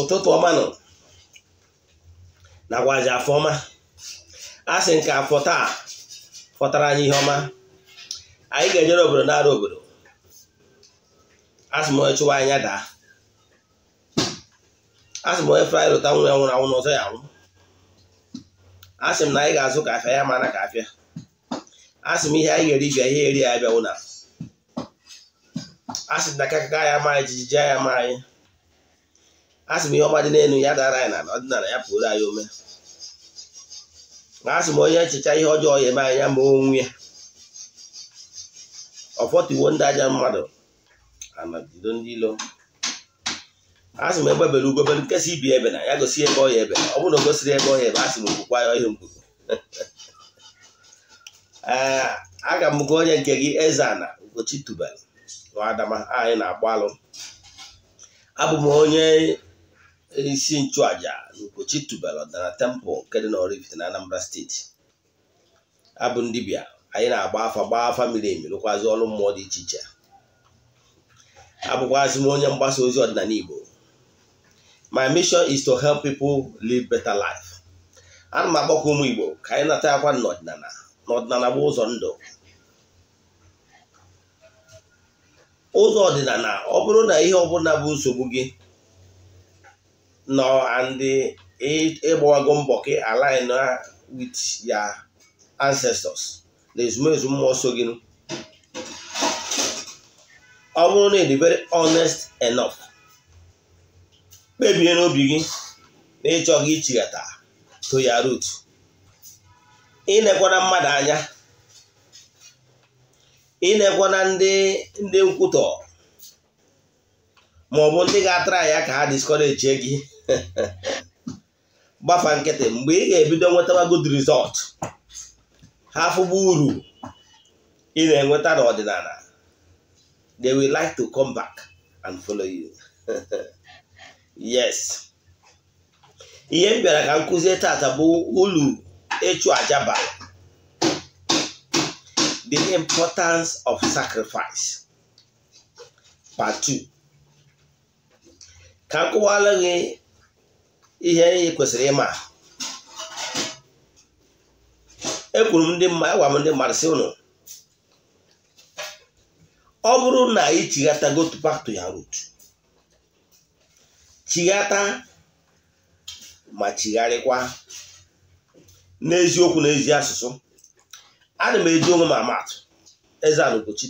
ụtụtụ ọma nọ nakwazi afọ ọma a sị nke afọ taa fọtara anyị ihe ọma anyị ga-ejere obodo nara obodo asị m onye chụwa anya daa asị m onye fraị lụta nwa ya nwụrụ anwụ n'ọzọ ya anwụ asị m na anyị ga-azụ kafe ya mana ka afịa asị m ihe anyị ga-eri bịa ihe eri ya bịa nwụna asị m na aka ya ma anyị jijiji ya ma anyị asị m ihe ọma dị n'elu ya dara anyị na ọdịnala ya pụrụ anyị ome na asị m onye echicha ihe ọjọọ ya eme anya ma onwe ya ọfọtuwo ndị aja mmadụ anajido ndị ilo asị m ugo ugobere nkesa ibi ebe na ya gosi ebe ọhịa ebe ọ bụrụ na o gosiri ebe ọya ebe asị m okwukwa ya ọhịa mkpugo ee eh, aga m gụ onye nke gị eze ana Ugochi Tubal na adama anyị na-agbalụ abụ m onye isi nchụàjà Nkechi tubelu ọdịnala tempụl nke dị n'Oraifite na Anambra steeti abụ ndị bịa anyị na-agba afa gbaa afa miri emi rụkwazi ọrụ mmụọ dị iche iche abụkwazị m onye mgbasa ozi ọdịnala Igbo my mission is to help people live better life ana m agbakọ ụmụ Igbo ka anyị nata akwa n'ọdịnala n'ọdịnala bụ ụzọ ndụ ụzọ ọdịnala ọ bụrụ na ihe ọbụla bụ nsogbu gị no and ịgbawago mbọ ka align with your ancestors na ezumezu mmụọ so gị ọ bụrụ na ịdị very honest enough kpebie n'obi gị na ịchọghị ichighata to your root inekwana mmadụ anya inekwana ndị ndị nkwutọ maọbụ ndị ga-atara ya ka ha discourage gị gbafa nkịtị mgbe ị ga-ebido nwetawa good result ha uru ị na-enweta n'ọdịnala they will like to come back and follow you yes ihe m bịara ka m kụzie tata bụ ulu ịchụ aja the importance of sacrifice part 2 ka m gị ihe anyị kwesịrị ịma ekwuru e m ndị mmadụ agwa m ndị mmadụ si ụnụ ọ bụrụ na ị chighata go to back to root chighata ma chigharịkwa n'eziokwu na ezi asụsụ ana m eji onwe m amatụ eze anụgochi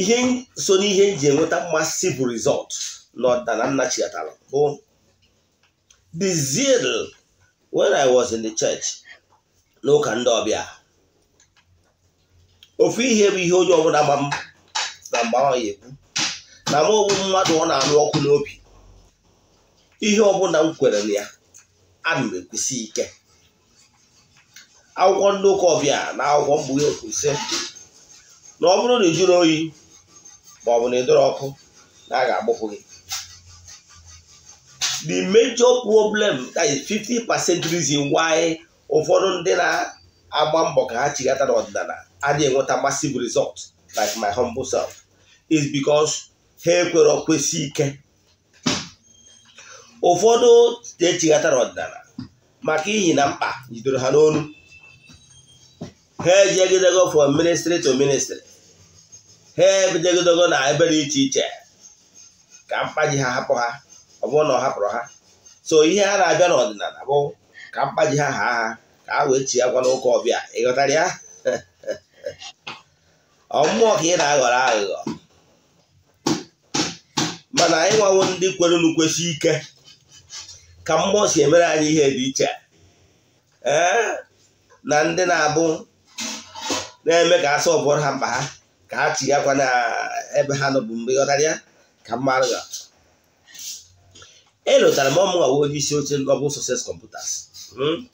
ihe so n'ihe m enweta mmasị bụ rizọtụ Nna Nnachiatala bụ the zeal when I was in the church n'ụka ndị ọbịa ofu ihe bụ ihe onye ọbụla ma m na mgbe ahụ ya na m ogbu mmadụ ọ na-anụ ọkụ n'obi ihe ọbụla m kwere na ya ana m ekwusi ike akwụkwọ ndị ụka ọbịa na akwụkwọ mgbughe kwusị na ọ bụrụ na ị jụrụ oyi ma ọ bụ na ị dọrọ ọkụ na a ga-agbụpụ gị the major problem that is 50% reason why ụfọdụ ndị na-agba mbọ ka ha chighata n'ọdịnala adịghị enweta massive result like my humble self is bicos ha ekwere okwesị ike ụfọdụ echigata n'ọdịnala maka ihi na mkpa jidoro ha n'onu ha ejegidego from ministry to ministry ha ebidogidego na ebe dị iche iche ka mkpa ji ha hapụ ha ọ bụrụ na ọ hapụrụ ha so ihe a na-abịa n'ọdịnala bụ ka mkpa ji ha ha ha ka a wee chi agwa n'ụka ọbịa ịghọtara ya ọmmụọ ka ị na-aghọrọ aghụghọ mana anyị nwawo ndị kwere n'ukwesị ike ka mmụọ si emere anyị ihe dị iche ee na ndị na-abụ na-eme ka asọ ọbụrụ ha mkpa ha ka a chigakwa gakwa na ebe ha nọbụ mgbe ịghọtara ya ka mma aghụghọ elotara m I nwa onye isi oche Global Success Computers hmm?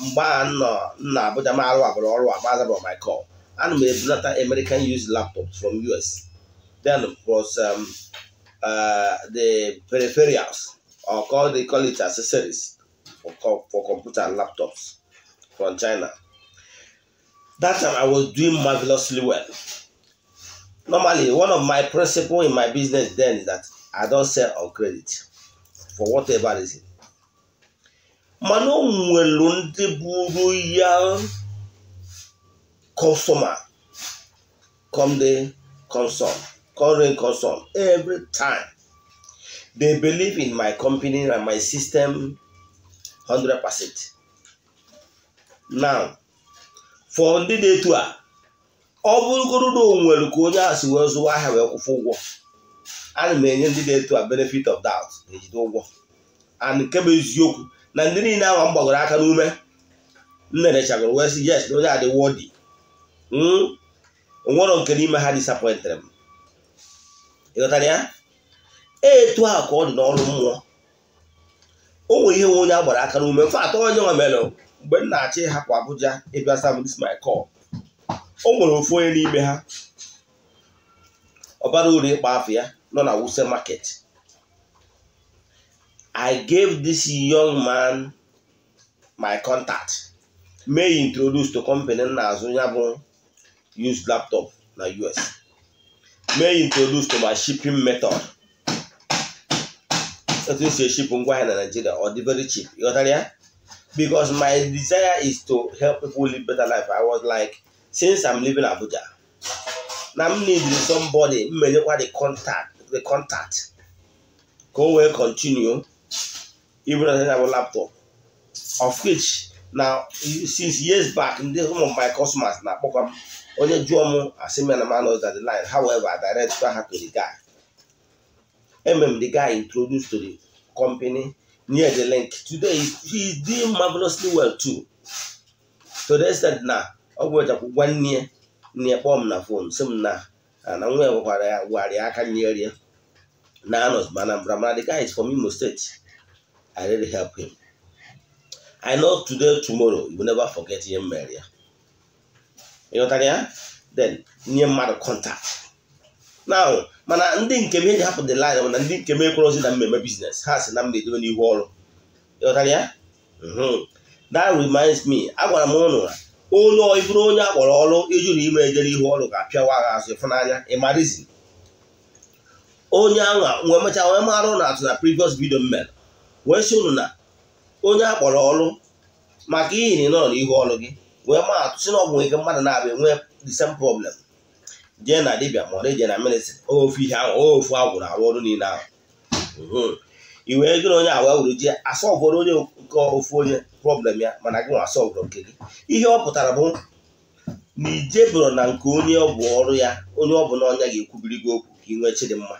mgbe a nọ nna Abuja m arụ abụrụ ọrụ a mazabụ Michael ana m ebunata American used laptops from US then plus um, uh, the peripherals or call they call it accessories for, for computer and laptops from China that time I was doing marvelously well normally one of my principle in my business then is that I don't sell on credit for whatever reason mana o nwelu ndị buru ya kọsọma com dey consume current consume every time they believe in my company and my system 100 percent now for ndị dị etu a ọ bụrụgoro na o ka onye asị si wee zụwa ahịa wee kwụfụ ụgwọ A na m enye ndị na-eto a benefit of doubt na-ejide ụgwọ and nke bụ eziokwu na ndị niile ahụ m gbagoro aka n'ume nnenechagoro wee sị yes na onye adị wọdi nwere nke n'ime ha disappointere m ịghọtara ya etu a ka ọ dị n'ọrụ mmụọ o nwere ihe nwe onye a gbara aka n'ume mfe atọ onye nwe mere mgbe m na-achị hapụ Abuja ịbịa sam dis my o nwere ofu onye n'ime ha ọ uru ịkpa afọ ya nọ na wuse market i gave this young man my contact may introduce to company na-azụ ya bụ used laptop na us may introduce to my shipping method etu si eship ngwa ahịa na Nigeria ọ dị very cheap ịghọtara ya because my desire is to help people live better life i was like since i'm living abuja na m need somebody mmejekwa the contact the contact ka o wee continue i ya bụ laptop of which na since years back ndị some of my customers na-akpọkwa m onye jụọ m asị m na man the line however I direct ha to the guy emem the guy introduced to the company near the link today he is doing marvelously well too to the extent na ọ gwụrụchakwu gwa nne nne kpọọ m na fon sị m na na nwa ya gwakwara ya gwara aka nyerie Nanos Banabramana. The guy is from Imo State. I really help him. I know today, tomorrow, you will never forget him, Maria. You know what I mean? Then, near mana ndị nke m eji hapụ the line mana ndị nke m ekworozi na mmeme biznes ha si na m na-edobe n'ihu ọrụ ịghọtara ya that reminds me agwara m ụnụ na onye ọbụrụ onye akpọrọ ọrụ ijuru ime ejere ihu ọrụ ga-apịawa agha azụ ịfụnanya ịmarizi onye aha wee mechaa wee mara ụnụ atụ na previous video mere wee si ụnụ na onye a kpọrọ ọrụ maka ihi na ịnọrọ n'ihu ọrụ gị wee ma atụ si na ọ bụ nwere ike mmadụ na-abịa nwee the same problem jee na dibia ma ọ je na ministry ofu ihe ahụ ofu agwụrụ arụ ọrụ niile ahụ i wee gịrị onye awa wuru ji ọgwụrụ onye nke ofu onye problem ya mana gị nwa ọgwụrụ nke gị ihe ọ pụtara bụ na bụrụ na nke onye ọ bụ ọrụ ya onye ọ bụla ọnya ga-ekwubiri gị okwu ka ị nwee chidimma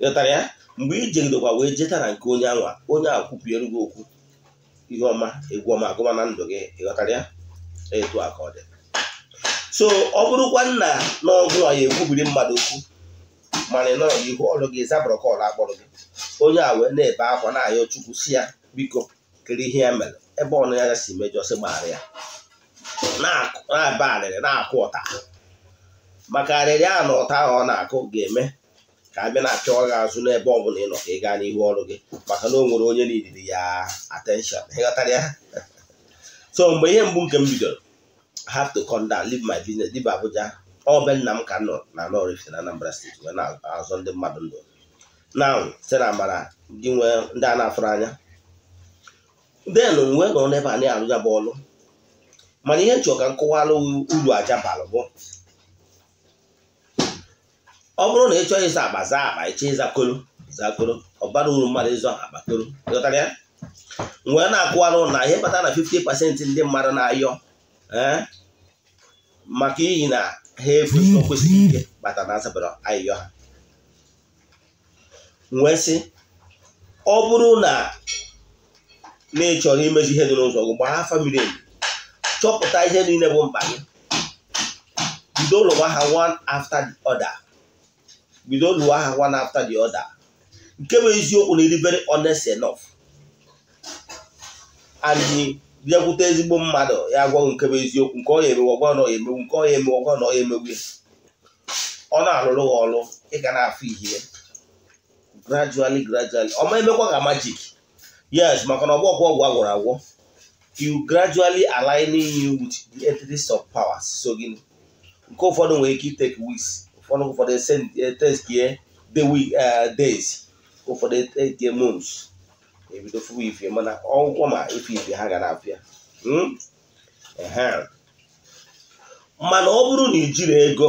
ghọtara ya mgbe ije ndokwa wee jetara nke onye anwa onye a kwupụere gị okwu ihe ọma egwu ọma agụma na ndụ gị ịghọtara ya etu a ka ọ dị so ọ bụrụkwa nna n'ọgụ a ya ekwubiri mmadụ okwu mana ị nọrọ n'ihu ọrụ gị zabụrụ ka ọrụ akpọrọ gị onye a wee na-ebe akwa na-ayọ chukwu si ya biko kere ihe ya mere ebe ọnụ ya si mejọ sị gbaghara ya na-aba arịrị na-akụ ụta maka arịrị a na ụta ahụ ọ na-akụ ga-eme ka a na-achọ gị azụ n'ebe ọ bụla ị nọ ka ị gaa n'ihu ọrụ gị maka na o nwere onye na-edidi ya attention ịghọtara ya so mgbe ihe mbụ nke m bidoro have to come down leave my business leave Abuja ọ bụ nna m ka nọ na Nọrifite na Anambra steeti wee na-azọ ndị mmadụ ndụ na site na amara ndị nwee ndị a na-afụrụ anya then mgbe nọrọ n'ebe a na-arụja bụ ọrụ mana ihe m chọrọ ka uru aja balụ bụ ọ bụrụ na ị chọghị ịza akpa zaa akpa ịchọ ịza koro zaa koro ọ bara uru mmadụ ịzụ akpa koro ịghọtara ya wee na-akụwarụ na ihe bata na 50 pasentị ndị mmadụ na-ayọ eh, maka iyi na ha efu o kwesịghị ike bata na azabara ayịyọ ha nwee sị ọ bụrụ na na ị chọrọ imezu ihe dị n'ụzọ gị gbara afa miri chọpụta ihe niile bụ mkpa gị bido ụlọwa ha one after the other bido lụọ aha one after the other nke bụ eziokwu na eribere very honest enough and bịakwute ezigbo mmadụ ya agwaghị nke bụ eziokwu nke ọ ya emewe ọgwa na ọ ya emegbu nke ọ ya emewe ọgwa na ọ ya emegbu ọ na-alụrụ ha ọrụ ịga na-afụ ihe gradually gradually ọma emekwa ka magic yes maka na ọgwụ ọgwụ ọgwụ agwọrọ agwọ you gradually aligning you with the entities of power so gịnị nke ụfọdụ nwere ike itake weeks ọnụ ụfọdụ teskie days ụfọdụ year months ebido fụwa ife mana ọgwụkwọ ma ife ife ha ga na-apịa mana ọ bụrụ na ijiri ego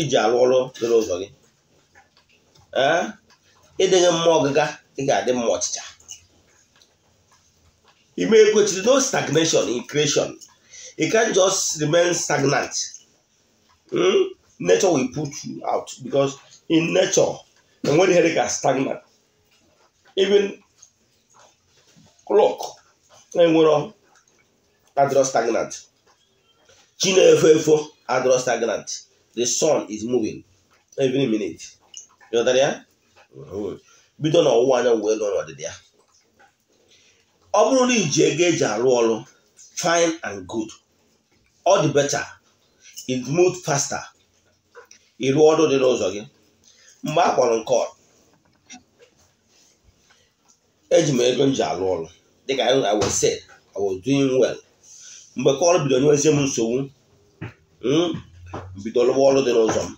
iji alụ ọrụ dịrị ụzọ gị ịdịghị mma ọgịga ị ga-adị mma ọchịcha ime ekwechiri no stagnation in creation it can just remain stagnant. Hmm? nature will put you out because in nature, and when the headache is stagnant, even clock and e we're adro stagnant. Chinefefo adro stagnant. The sun is moving every minute. You know that yeah? bido n'ọwụwa anyanwụ wee lụọ n'ọdịda ya ọ bụrụ na iji ego eji arụ ọrụ fine and good all the better it move faster ịrụ ọrụ dị n'ụzọ gị mgbe a kpọrọ nke eji m ego m ji alụ ọrụ dịka I was said doing well mgbe kọl bido nyewezie m nsogbu m bido lụwa ọrụ dị n'ụzọ m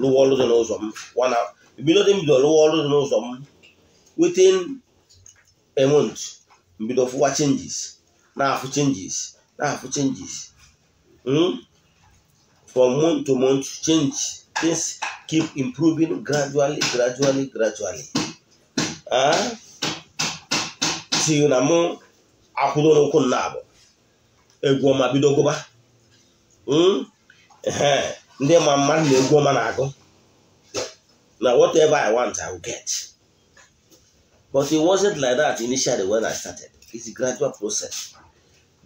lụwa ọrụ dị n'ụzọ m wana bido dị mbido bido lụwa ọrụ dị n'ụzọ m within a mbido fụwa changes na-afụ changes na-afụ changes hmm? from month to month change things keep improving gradually gradually gradually ah? si na m akwụdo n'ụkwụ nna abụ egwu ọma bido gụba hmm? ndị ma mmadụ na egwu ọma na-agụ na whatever I want I will get but it wasn't like that initially when I started it's a gradual process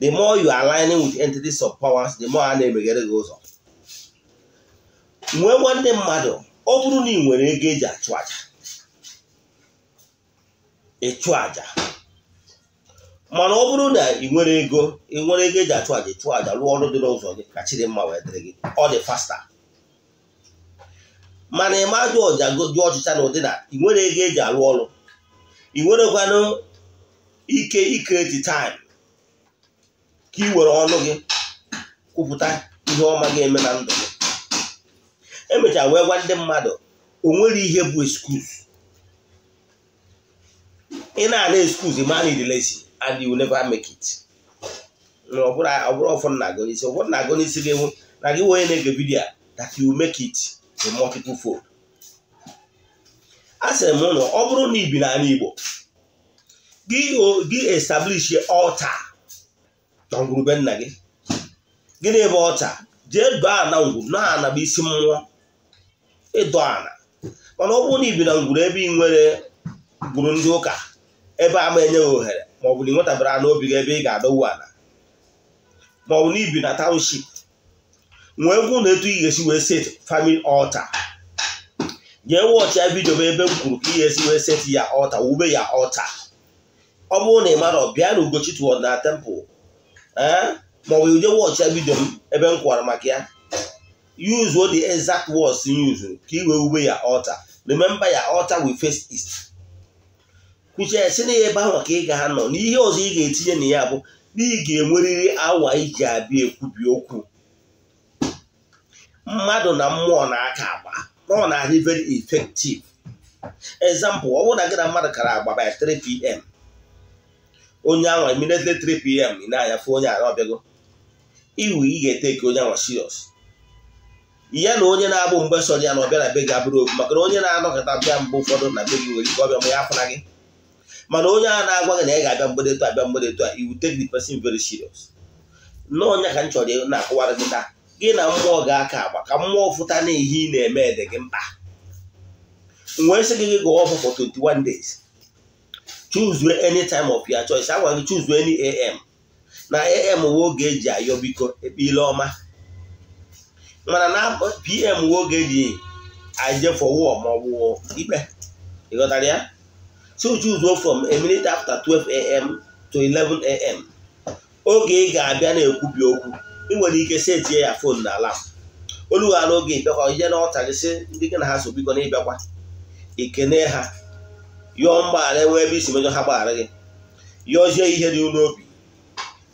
the more you align aligning with entities of powers the more a na-emeghere gị ụzọ nwee nwanne mmadụ ọ bụrụ na ị nwere ego eji achụ aja ịchụ aja mana ọ bụrụ na ị nwere ego ị nwere ego eji achụ aja ịchụ aja rụọ ọrụ dị n'ụzọ gị ka chiri mma wee dịrị gị ọ dị fasta mana ma jụọ ọja jụọ ọchịcha na ụdị na ị nwere ego eji arụ ọrụ ị nwerekwanụ ike ikreti taim ka ị were ọnụ gị kwupụta ihe ọma ga-eme na ndụ gị emechara wee gwa ndị mmadụ o nwere ihe bụ excuse ị na-ana excuse man in relation and you never make it ọ bụrụ ụfọdụ na-agụ n'isi ụfọdụ na-agụ n'isi gị ewu na gị onye na-ege vidiyo that you make it in multiple fold a sịrị m ụlọ ọ bụrụ na ibi n'ala Igbo gị establish ọta na ngwurube nna gị gịnị ebe ọta jee baa na ngwu na-anaba isi mmụọ ịdọ ala mana ọ bụrụ na ibi na ngwuru ebe ị nwere gburu ndị ụka ebe ama enye gị ohere ma ọ bụ na ị nwetabara n'obi gị ebe ị ga-adọwu ala ma ọ bụ na ibi na township nwee egwu na etu ị ga-esi wee set family altar jee wọchịa vidio m ebe m kwuru ka ị ga-esi wee set ya ọta wube ya ọta ọ bụrụ na ị ọ bịa na Ugochitoward na tempụl ee ma ọ bụ ije wọchịa m ebe m kwụwara maka ya use what the exact words use ka i wee wube ya altar remember ya altar wi face east kwuchie si na ya ebe ahụ ka ị ga nọ n'ihe ọzọ ị ga-etinye na ya bụ na ị ga-enwerịrị awa iji abịa ekwubi okwu mmadụ na mmụọ na-aka agba ọ na-adị very effective example ọ bụrụ na gịna mmadụ kara agba by 3 pm onye ahụ immediately 3 pm ị na-anya fụ onye ahụ ọbịago iwu ị ga-ete ka onye ahụ serious ya na onye na-abụ mgbe sọrọ ya na ọbịa na be gị abụrụ okwu maka na onye na-anọkọta bịa mgbe ụfọdụ na be gị nwere ike ọbịa ma ya afụna gị mana onye a na-agwa gị na ị ga-abịa mgbede tụ abịa mgbede tụ a you take the veri very serious n'ọnya ka m chọrọ na-akụwara gị taa gị na mmụọ ga-aka agba ka mmụọ fụta na ihe ị na-eme dị gị mkpa wee sị gị gị gụọ ọfụ for 21 days choose any time of your choice agwa gị choose any am na am bụ oge eji ayọ biko ekpe ile ọma mana na pm nwoke ji ajefe maọbụ ma ikpe ịghọtara ya so choose go from a minute after 12am to 11am oge ị ga-abịa na-ekwubi okwu ị nwere ike setie ya fon na ala olu ha n'oge ịbịakwa ihe na ọtarị sị ndị gị na ha so na ịbịakwa ikene ha yọọ mgbaghara enwee ebe isi mejọ ha gbaghara gị yọzie ihe dị n'obi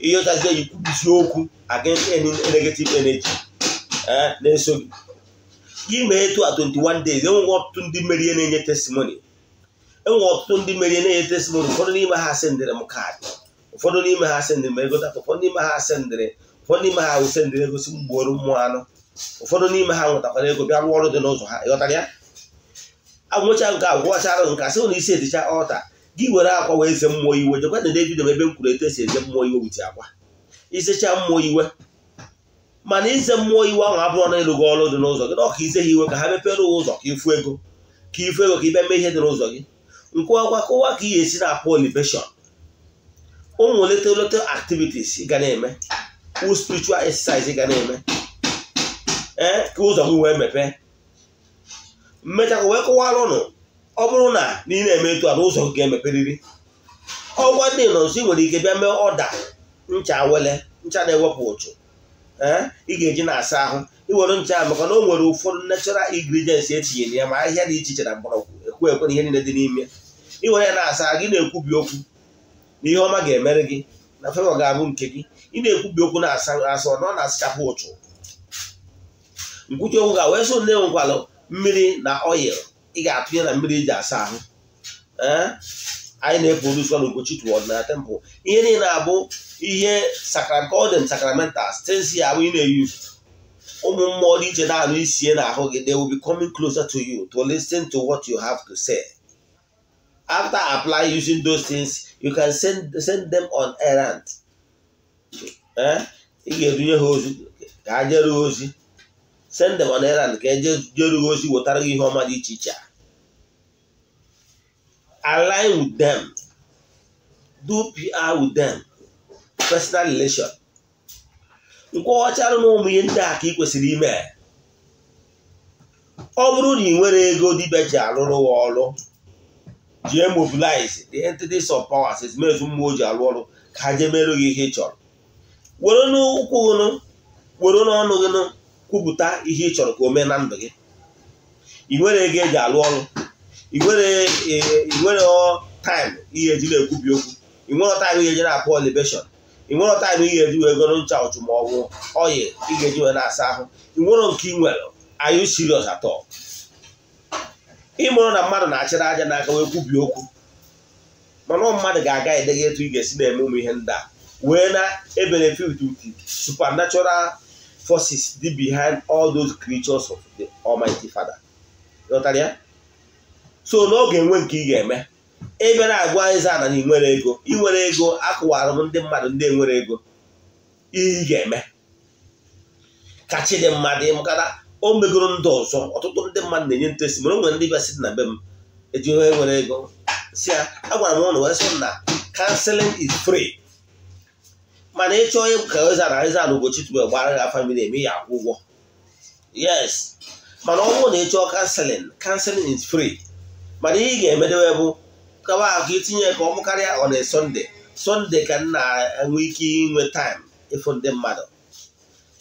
ịyọchazie ikwubisi okwu against any negative energy Eh, na-eso gị gị etu a 21 days enweghị ọtụtụ ndị merie na-enye testimony enwere ọtụtụ ndị merie na-enye testimony ụfọdụ n'ime ha sendịrị m kaadị ụfọdụ n'ime ha sendịrị m ego data ụfọdụ n'ime ha sendịrị ụfọdụ n'ime ha wụ sendịrị ego si mgboru mmụọ anụ ụfọdụ n'ime ha nwetakwara ego bịa rụọ ọrụ dị n'ụzọ ha ịghọtara ya agwụcha nke agwụchara nke asị na isi eticha ọta gị were akwa wee ze mmụọ iwe jekwa na David ebe m kwuru etu esi eze mmụọ iwe wuti akwa isecha mmụọ iwe mana ize mmụọ iwu ahụ abụọ na ịlụ ọrụ dị n'ụzọ gị na ọka ize ha iwe ka ha mepere ụzọ ka ifu ego ka ifu ego ka ibe mee ihe dị n'ụzọ gị nkwụwakwa kụwa ka ị ga-esi na-apụ olibeshọn ụmụ leta leta activities ga na-eme spiritual exercise ga na-eme ee ka ụzọ gị wee mepe mmechakwa wee kụwara ụnụ ọ bụrụ na ị na-eme etu a na ụzọ ga-emeperiri ọgwa dị nọ nso ị nwere ike bịa mee ọda ncha wele ncha na-ewepụ ụchụ Eh? ị ga-eji na-asa ahụ iwere ncha maka na o nwere ụfọdụ natural ingredients etinyere ya ma ahịhịa dị iche iche na mgbọrọgwụ ekwe ekwe na ihe niile dị n'ime iwere ya na-asa gị na-ekwubi okwu na ihe ọma ga-emere gị na fevọ ga-abụ nke gị ị na-ekwubi okwu na-asa asa ọ na-asachapụ ụtụ nkwuchi okwu ga wee so nne mmiri na oyil ị ga-atụnye na mmiri iji e asa ahụ eh? anyị na-efe oluso n'ugochi toward na temple ihe niile abụ ihe sakrakọdem sakramental stensi abụ ị na-eyuzu ụmụ mmụọ dị iche na-anụ isie na ahụ gị they will be coming closer to you to listen to what you have to say after apply using those things you can send, send them on errand eh? ị ga-edunye ha ozi ka ha ozi send them on errand ka e ozi wetara gị ihe ọma dị iche iche a align with them, do PR with them, personal relation. nke ọchara na ụmụ ihe ndị a ka ị kwesịrị ime ọ bụrụ na ị nwere ego dibia ji arụrụ ya ọrụ ji mobilize the entities of power powers ezumezu mmụọ ji arụ ọrụ ka ha jee merụ gị ihe ị chọrọ were n'ụkwụ nụ were n'ọnụ gị nụ kwupụta ihe ị chọrọ ka o mee na ndụ gị ị nwere ego eji arụ ọrụ inwero taịm ihe eji na-ekwubi okwu inwero taịm ihe eji na-apụ olibeshọn inwero taịm ihe eji wee goro ncha ọchụ oyi ọyị ga-eji wee na-asa ahụ inwero nke ị nwere ayụ sirios atọ ịmụrụ na mmadụ na-achịrị aja n'aka wee kwubie okwu mana mmadụ ga-aga edeghe etu ị ga-esi na-eme ụmụ ihe ndị a wee na-ebenefit with supernatural forces dị behind all those creatures of the Almighty Father. so n'oge nwe nke ị ga-eme ị na-agwa ịza ana na inwere ego inwere ego akụwara m ndị mmadụ ndị enwere ego ihe ị ga-eme ka chi dị mma na o megoro ndị ọzọ ọtụtụ ndị mmadụ na-enye ntesi mere o nwere ndị bịa na be m eji ihe nwere ego si ya agwara m ụnụ wee sị na kanseling is free mana ịchọọ ka ịzara ịzara ugochi tupu e gbara gị afa eme ya akwụ ụgwọ yes mana ọ bụrụ na ịchọọ kanseling kanseling is free mana ihe ị ga-emedewe bụ kawa ahụ itinye ka ọmụ karịa ọ na sọnde sọnde ka m na-enwe ike inwe taịm ịfụ ndị mmadụ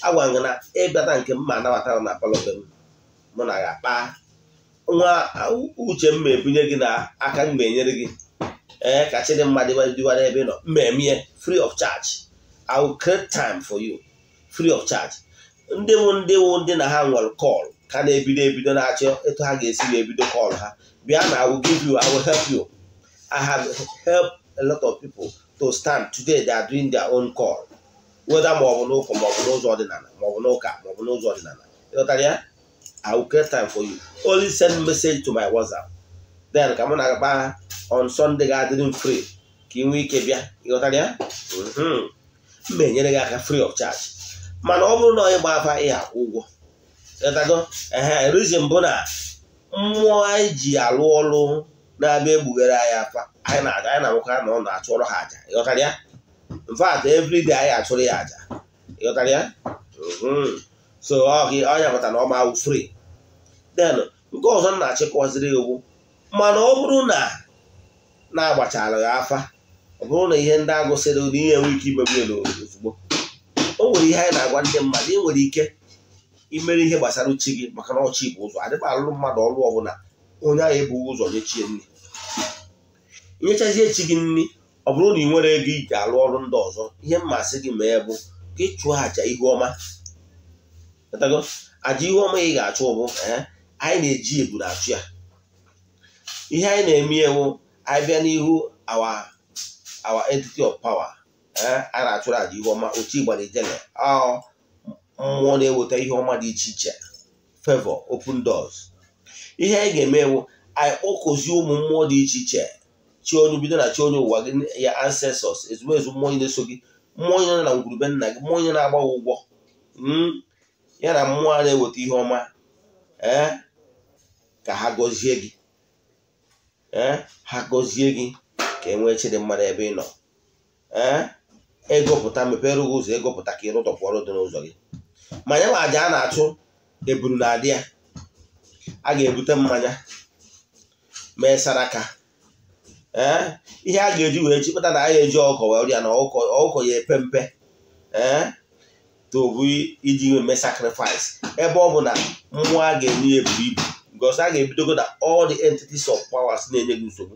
agwa gị na ịbịata nke m ma anabatara na palọbe m mụ na ya kpaa. nwa uche m ma ebunye gị na aka m ga-enyere gị ee ka chi dị mma dịwara ebe ị nọ mmemme free of charge I will create time for you free of charge ndị wụ ndị wụ ndị na ha nwere kọl ka na-ebido ebido na-achọ etu ha ga-esi wee bido kọl ha bịa na I will give you I will help you I have helped a lot of people to stand today they are doing their own call weda ma ọ bụ n'ụka ma ọ bụ n'ụzọ ọdịnala ma ọ bụ n'ụka ma ọ bụ n'ụzọ ọdịnala ịghọtara ya I will create time for you only send message to my WhatsApp then ka mụ na-agba on Sunday ga-adịrị m free ka ị nwee ike bịa ịghọtara ya mhm. m na-enyere gị aka free of charge mana ọ bụrụ na onye gba afa ị akwụ ụgwọ rizin bụ na mmụọ anyị ji alụ ọrụ na-abịa egbughere anyị afa anyị na aga anyị na ọ na-achụrụ ha aja ịghọtara ya mfat everyday anyị achụrụ ya aja ịghọtara ya mm-hmm. so ọnya pụta na ọ ma awụ free then nke ọzọ m na-achịkọziri iwu mana ọ bụrụ na na-agbachala ya afa ọ bụrụ na ihe ndị agụsịrị na ihe ike imegbu ya ozugbo o nwere ihe anyị na-agwa ndị mmadụ ị nwere ike imere ihe gbasara uchi gị maka na ọchị bụ ụzọ adịba alụrụ mmadụ ọlụ ọbụla onye ahụ ebughị ụzọ nyechie nri nyechazie chi gị nri ọ bụrụ na ị nwere ego iji alụ ọrụ ndị ọzọ ihe mmasị gị mee bụ ka chụọ àjà ihu ọma àjà ị ga-achụ ụbụ eh, anyị na-eji eburu achụ ya ihe anyị na-eme ewu anyị bịa n'ihu awa awa entity of power eh, a na-achụrụ àjà ihu ọma ochi gbara ijele ọ mmụọ na-eweta ihe ọma dị iche iche favor open doors ihe anyị ga-eme ewu anyị kpọkọzie ụmụ mmụọ dị iche iche chi bido na chi ụwa gị ya ancestors ezumezu mmụọ onye na-eso gị mmụọ onye na ngwurube nna gị mmụọ onye na-agba ụgwọ hmm? ya na mmụọ a na-eweta ihe ọma ee eh? ka ha gọzie gị ee eh? ha gọzie gị ka e nwee chi mmadụ ebe ị nọ ee eh? ịgụpụta mepere ụzọ ịgụpụta ka ịrụtọpụ ọrụ dị n'ụzọ gị mmanya ma aja a na-achụ eburu na adị ya a ga-ebute mmanya mee saraka ee ihe a ga-eji wee chịkpụta na a ya eji ọkọ wee rịa na ọkọ ya epe mpe ee tobu iji mee sacrifice ebe ọ bụ na mmụọ a ga-enye ya eburu ibu because a ga-ebidogo na all the entities of powers na-enye gị nsogbu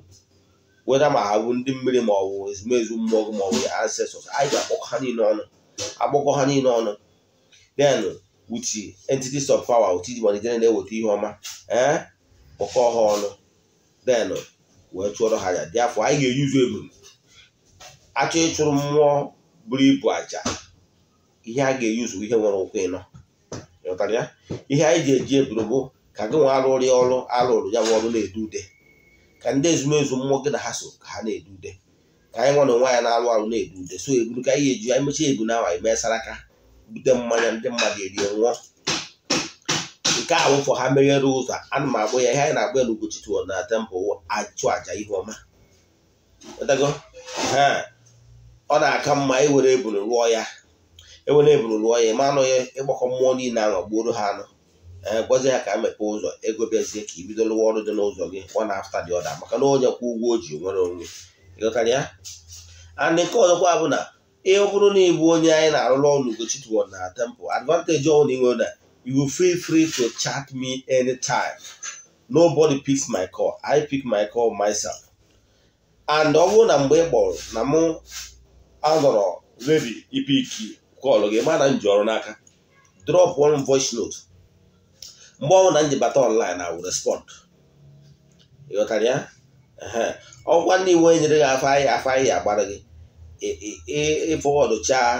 weta ma ha bụ ndị mmiri ma ọ bụ ezumezu mmụọ gị ma ọ bụ ancestors anyị ga-akpọkọ ha niile ọnụ akpọkọ ha niile ọnụ then with entities of power otu iji malite na-eweta ihe ọma ee kpọkọ ha ọnụ then wee chụọrọ ha aja dị afọ anyị ga-eyuzu ebum achọ ịchụrụ mmụọ buru ibu aja ihe a ga-eyuzu ihe nwere ụkwụ ịnọ ịghọtara ya ihe anyị ji eji eburu bụ ka gị nwa arụrụ ya ọrụ arụrụ ya nwa ọrụ na-edu ude ka ndị ezumezu mmụọ gị na ha so ka ha na-edu ude ka anyị nwa na nwa ya na-arụ arụ na-edu ude so eburu ka anyị eji anyị mechaa ebu na awa anyị bute mmanya ndị mmadụ erie nwụọ nke a wụfọ ha meghere ụzọ ana m agbụ ya ihe anyị na-agba elu gochitu na tempụl achụ aja ihe ọma ọ na-aka mma ewere ebulu rụọ ya ewere ebulu rụọ ya ma anụghị ịgbakọ mmụọ niile ahụ gbuoro ha anụ e, gwazi ya ka mepee ụzọ ego bịazie ka i bido rụwa ọrụ dị n'ụzọ gị ọ na afta dị ọda maka na onye kwụ ụgwọ o ji nwere onwe ịghọtara ya and nke ọzọkwa bụ na ọ bụrụ na ịbụ onye anyị na-arụrụ ọrụ Ugochitubelu na Tempo advantage na inwe na you feel free to chat me anytime nobody picks my call I pick my call myself and ọ bụrụ na mgbe ị kpọrọ na mụ anọrọ ready ipiki kọlụ gị mana m ji ọrụ n'aka drop one voice note mgbe ọ bụla m ji online I will respond ị ya ọkwa ndị iwu nyere gị afọ ahịa afọ ahịa agbara gị ịfọwọdụchaa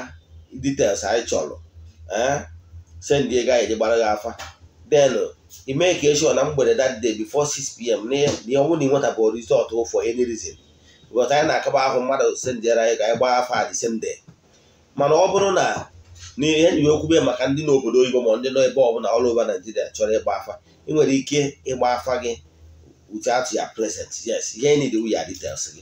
details anyị chọrọ eh? send ego anyị gbara gị afa then ime ka eshọ na mgbede that day before 6pm n'ọnwụ na ịnwetabụ rizọtụ for any reason because anyị na-akaba ahụ mmadụ sendịara anyị ka anyị gbaa afa the same day mana ọ bụrụ na n'ihe nyiwe okwube maka ndị n'obodo oyibo ma ndị nọ ebe ọbụla ọrụ over Naijiria chọrọ ịgba afa ị nwere ike ịgba afa gị atụ ya present yes ihe need we your details gị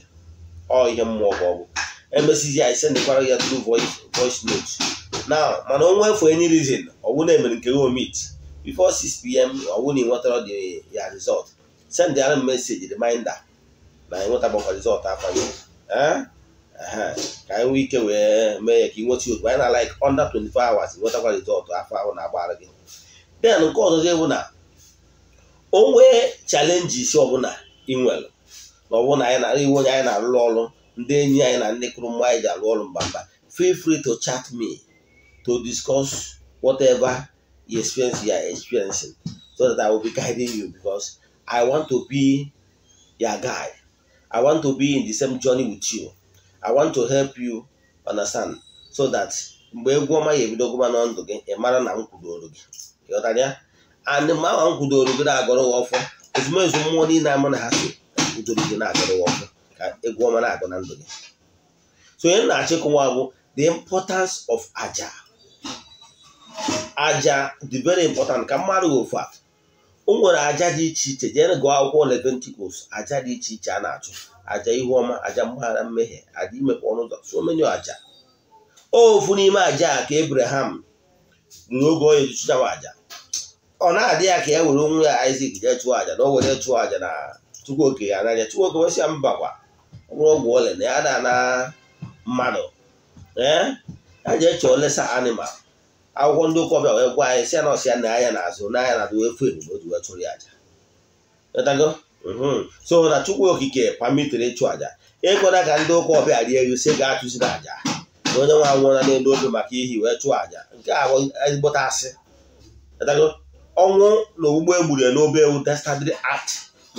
ọ ihe mmụọ bụ ọgwụ emesizi anyị sendekwara ya through voice voice note na mana ọnwa efu any reason ọwụ na-emere nke gị omit before 6 pm ọwụ na ịnwetara dị ya result send m meseji reminder na ịnwetabakwa result afọ gị eh? ka anyị nwee ike wee mee ya ka ị nweta otu anyị na like under 24 hours nwetakwa result afọ ahụ na-agbara gị den nke ọzọzọ bụ na o nwee chalenji isi ọbụla ị na ọbụna anyị na-arịwo onye anyị na-arụrụ ọrụ ndị enyi anyị na ndị kụrụ mma anyị ọrụ mba mba feel free to chat me to discuss whatever you experience you are experiencing so that I will be guiding you because I want to be your guy I want to be in the same journey with you. I want to help you understand so that mgbe egwu ọma ya ebido gụba na ndụ gị ị mara na m kwudoro gị ịghọtara ya and ma ma m kwudoro gị na-agọrọ ụwa ọfọ ezumezu mmụọ niile ama na ha so kwudoro gị na-agọrọ gị ọfọ ka egwu ọma na-agụ na ndụ gị so onye na-achịkwa bụ the importance of aja aja dị very important ka mmadụ ofu a o nwere aja dị iche iche jere gụọ akwụkwọ Leviticus aja dị iche iche a na-achụ aja ihu ọma aja mgbaghara mmehie aja imepe ọnụ ụzọ so many aja ofu n'ime aja ka Abraham n'oge onye chụchawa aja ọ na-adị ya ka ya e were onwe ya Isaac jee chụọ aja na o were chụọ aja na Chukwuoke ya n'anya Chukwuoke wesịa mbakwa ọbụrụ ọgwụ ole na ya da na mmadụ eh, ee a ji eche olesa animal akwụkwọ ndị ụkọbịa wee gwa anyị si ya na ọsịa na anya na-azụ n'anya na adịwefu ebube oji wee chụrụ ya aja mhm. so na chukwu okike pamitere ịchụ aja ịkwada ka ndị ụka ọbịa rie ewu si ga-achụziri aja na onye nwa nwụra n'elu obi maka ihi wee chụọ aja nke a ezigbote asị ọnwụ na ogbugbo egburu n'obe ewu destadry act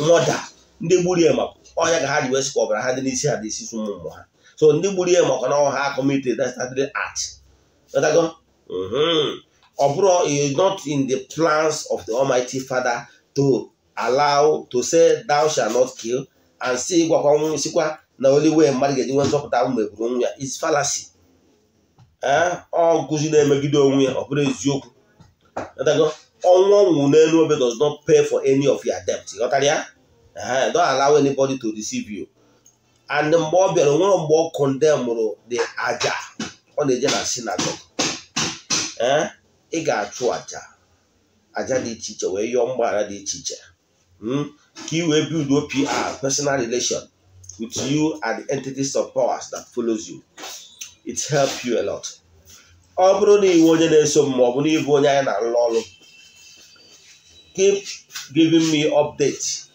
mọda ndị gburu ya Onya ga ha ji wee sikwa ọbara ha dị n'isi ha dị isi ụmụ mmụọ ha so ndị gburu ihe maka na ọha ha committed that act ọ bụrụ is not in the plans of the Almighty Father to allow to say thou shall not kill and si gwakwa nwụ sikwa na oliwe mmadụ ga-eji nwee nzọpụta mgbe gburu e onwe ya is fallacy eh? ọ nkụzi na-emegide onwe ya ọ bụrụ eziokwu ọnwụ ọnwụ n'elu obe does not pay for any of your debt ghọtara ya don allow anybody to deceive you and mgbe ọ bịara nwere mgbe ọ kọndemụrụ dị aja ọ na-eje na sinagogue ee ị ga-achụ aja aja dị iche iche wee yọọ mgbaghara dị iche iche hmm? ka ị wee build PR personal relation with you and the entities of powers that follows you it help you a lot ọ bụrụ na iwe onye na-eso m ma ọ na ịbụ onye anyị na-alụ ọrụ keep giving me updates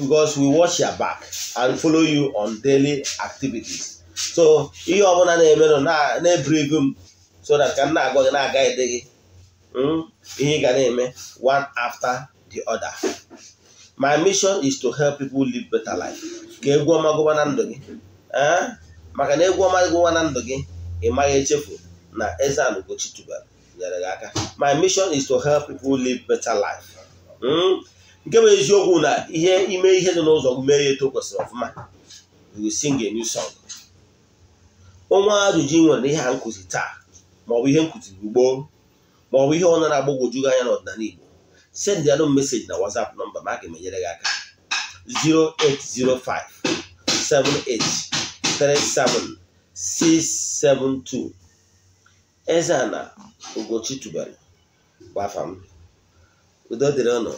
because we watch your back and follow you on daily activities so ihe ọbụla na-emenụ na-eburigo m so that ka m na-agwa gị na-aga ede gị hmm, ihe ị ga na-eme one after the other my mission is to help people live better life ka egwu ọma gụba na ndụ gị eh? maka na egwu ọma gụba na ndụ gị ị maghị echefu na eze anugochi tubelu nyere gị aka my mission is to help people live better life hmm? nke bụ eziokwu na ihe ime ihe dị n'ụzọ mee ya eto kwesịrị ọfụma sing a new song onwe ajụjụ ị nwere na ihe a nkụzi taa maọbụ ihe nkụzi ugbo maọbụ ihe ọ na-agbagwoju anya n'ọdịnala Igbo send ya meseji na WhatsApp nọmba ma a ga-emenyere gị aka 0805 7837672 Eze ana Ugochi tubelu m udo dịrị ọnụ.